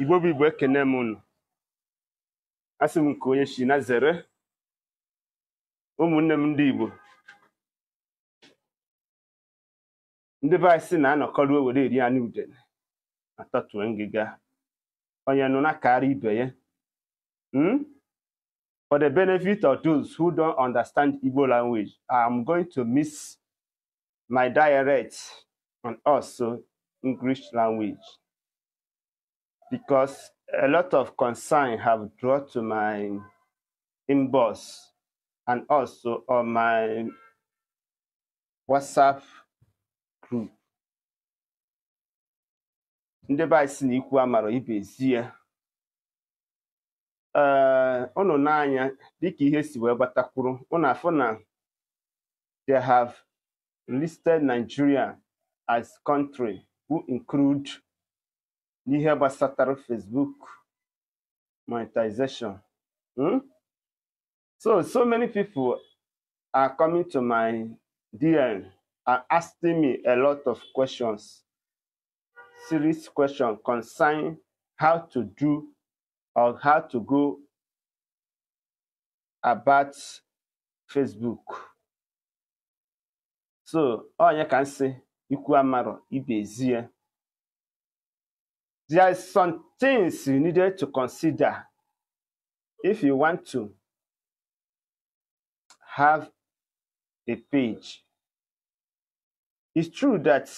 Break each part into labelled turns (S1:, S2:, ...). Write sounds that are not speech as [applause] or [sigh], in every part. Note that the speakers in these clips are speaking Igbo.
S1: igbo bụ igbo ekene m unu asị m nke onye si na zere ụmụnne m ndị igbo ndị be anyị sị na-anọkọrọ were eri anụ udene atọtue ngịga onye nụ na-akara ibe ya hmm? For the benefit of those who don't understand Igbo language, I am going to miss my on and also English language. because a lot of concern have drawn to my inbox and also on my WhatsApp group. ndị be anyị si na ikwu amara ibe ezie ee eh, ụnụ n'anya dịka ihe si wee gbatakwuru ụnụ they have listed Nigeria as country who include n'ihe gbasatara Facebook monetization. Hmm? So, so many people are coming to my DM are asking me a lot of questions, serious question, concerning how to do or how to go about Facebook. So, all you can say, ikwu amarọ ibe ezie. There is some things you needed to consider if you want to have a page. It's true that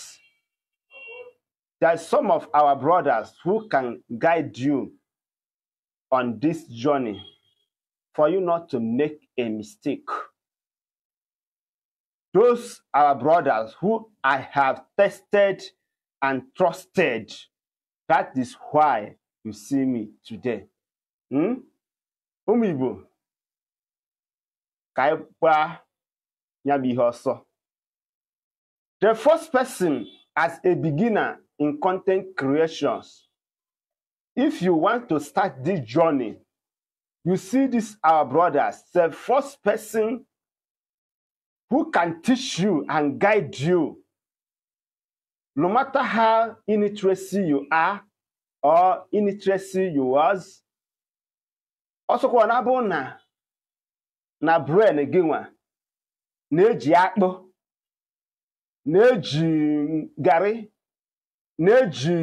S1: there are some of our brothers who can guide you on this journey for you not to make a mistake. Those are brothers who I have tested and trusted that is why you see me today. Hmm? Ụmụ Igbo ka The first person as a beginner in content creations, if you want to start this journey, you see this our brothers, the first person who can teach you and guide you no matter how illiteracy you are or illiteracy you was ọsọkwa na abụ na na bren gị nwa na-eji akpụ na-eji garị na-eji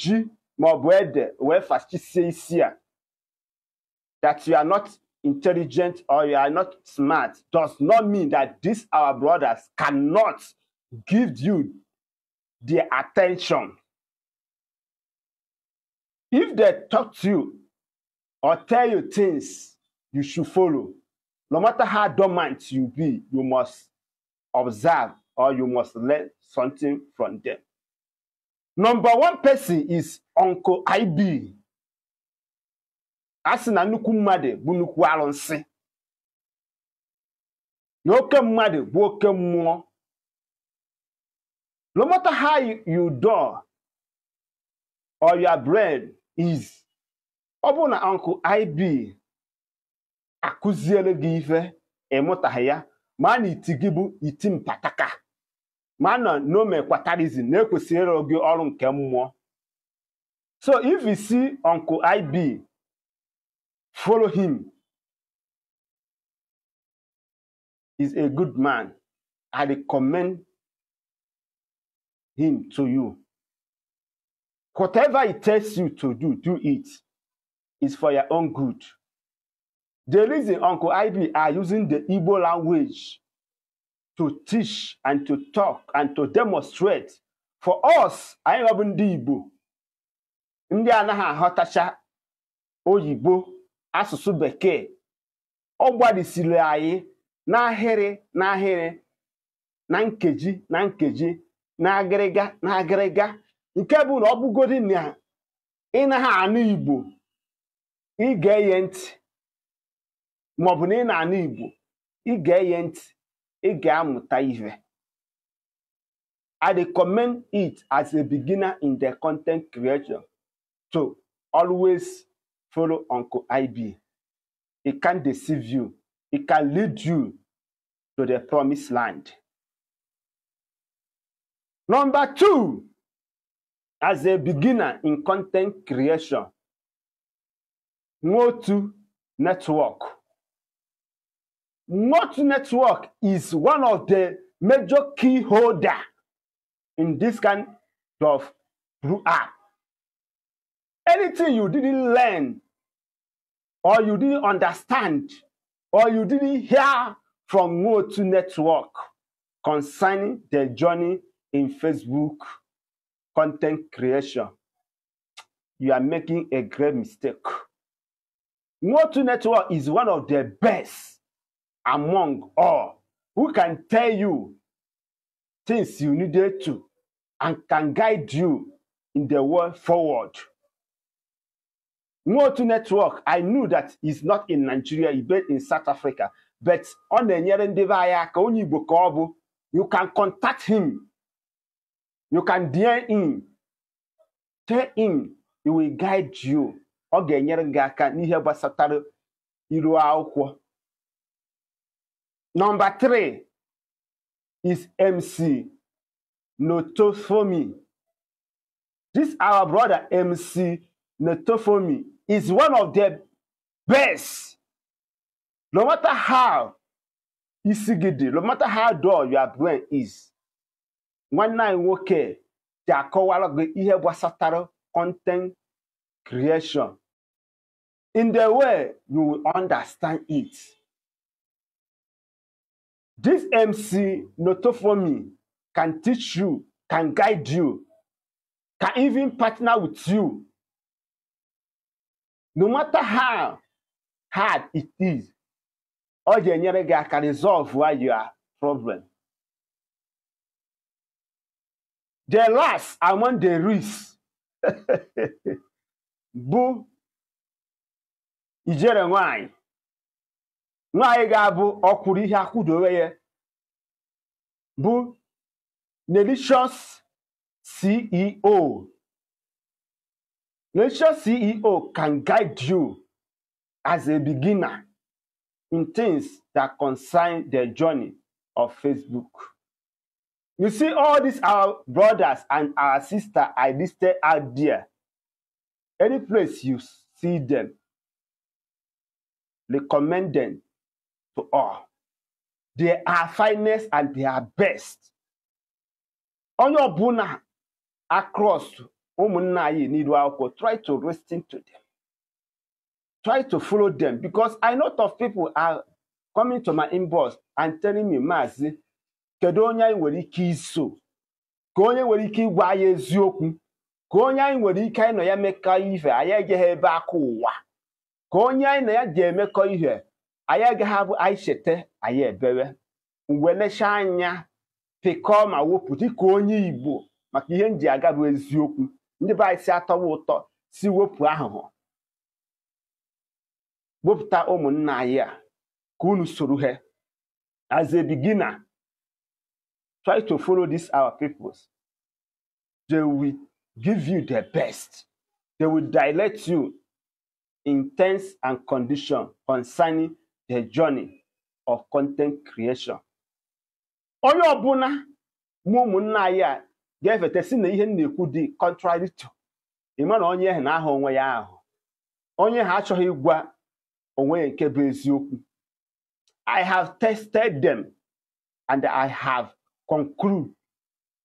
S1: ji maọbụ ede wee fachisie isi a that you are not intelligent or you are not smart does not mean that these our brothers cannot give you their attention. If they talk to you or tell you things you should follow, no matter how dormant you be, you must observe or you must learn something from them. Number one person is Uncle IB. Asị na nnukwu mmadụ bụ nnukwu arụsị. Na mmadụ bụ oke mmụọ no matter how you, you or your bread is ọ bụrụ na uncle IB akụziere gị ife ịmụtaghị ya ma na iti gị bụ iti mpataka ma na nomekwatarizm na-ekwesịrị gị ọrụ nke mmụọ so if you see uncle IB follow him is a good man I recommend him to you. Whatever it tells you to do, do it. It's for your own good. The reason Uncle Ivy are using the Igbo language to teach and to talk and to demonstrate for us, anyị ọbụ ndị Igbo ndị anaghị aghọtacha oyibo asụsụ bekee ọ gbarisiri anyị n'ahịrị n'ahịrị na nkeji na nkeji na agịrịga na agịrịga nke bụ na ọ bụgodi na ị naghị anụ Igbo ị ga-eye ntị maọbụ na ị na-anụ Igbo ị ga-eye ntị ị ga-amụta ihe I commend it as a beginner in the content creation to always follow Uncle IB. It can deceive you. It can lead you to the promised land. Number two, as a beginner in content creation, Motu Network. Motu Network is one of the major key holder in this kind of app. Anything you didn't learn or you didn't understand or you didn't hear from Motu Network concerning the journey in Facebook content creation, you are making a great mistake. Motu Network is one of the best among all who can tell you things you needed to and can guide you in the way forward. Motu Network, I knew that is not in Nigeria, it's based in South Africa. But on the Nyerendeva Ayaka, you can contact him you can dare him, tell him he will guide you ọ ga-enyere gị aka n'ihe gbasatara iru akwụkwọ nọmba 3 is mc notofomi this our brother mc notofomi is one of the best no matter how isi gị dị no matter how dull your brain is nwanne anyị nwoke ji akọwara gị ihe gbasatara content creation in the way you will understand it. This MC Notofomi can teach you, can guide you, can even partner with you. No matter how hard it is, ọ ga-enyere gị aka resolve your problem. the last among the rich [laughs] bụ ijere nwanyị nwanyị ga-abụ ọkwụrụ ihe akwụdowe ya bụ Nelicious CEO Nelicious CEO can guide you as a beginner in things that concern the journey of Facebook. You see, all these our brothers and our sister I listed out there. Any place you see them, recommend them to all. They are finest and they are best. your ọbụla across umunai anyị try to listen to them. Try to follow them because I know of people are coming to my inbox and telling me, Mazi, kedu onye anyị nwere ike iso ka onye nwere ike ịgwa anyị eziokwu ka onye anyị nwere ike anyị nọ ya mekọ ihe anyị ejeghị ebe aka ụwa ka onye anyị na ya ji emekọ ihe anyị agaghị abụ anyị cheta anyị ebewe mgbe nechaa anya pịkọọ ma wepụ dịka onye Igbo maka ihe m ji aga bụ eziokwu ndị be anyị si atọwa ụtọ si wepụ ahụhụ wepụta ụmụnna anyị a ka unu soro ha as a try to follow these our peoples. They will give you the best. They will direct you in terms and condition concerning the journey of content creation. Onye ọbụla mụ ụmụnna anyị a ga-efeta si na ihe na-ekwu dị contrary ịma na onye na-aha onwe ya ahụ onye ha achọghị gwa onwe ya nke bụ eziokwu I have tested them and I have conclude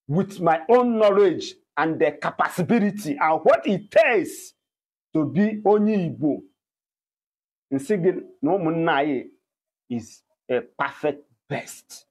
S1: with my own knowledge and the capacity and what it takes to be onye Igbo and singing no is a perfect best.